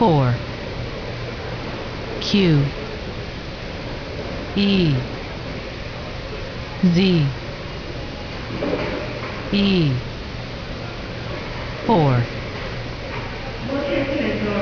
four Q E Z E 4